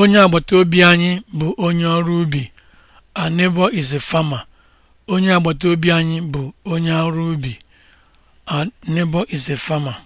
onye agbata obi anyị bụ onye ọrụ ubi Anebo neighbor is a farmer onye agbata obi anyị bụ onye ọrụ ubi Anebo neighbor is a farmer